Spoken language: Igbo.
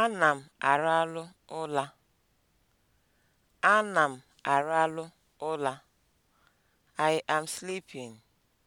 Ana m ararụ ụla. Ana m ararụ ụla. I am sleeping.